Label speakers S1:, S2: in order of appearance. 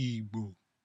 S1: igbo